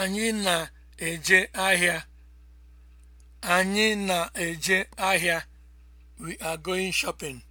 Anyị na-eje ahịa. Anyị na We are going shopping.